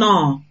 nnọọ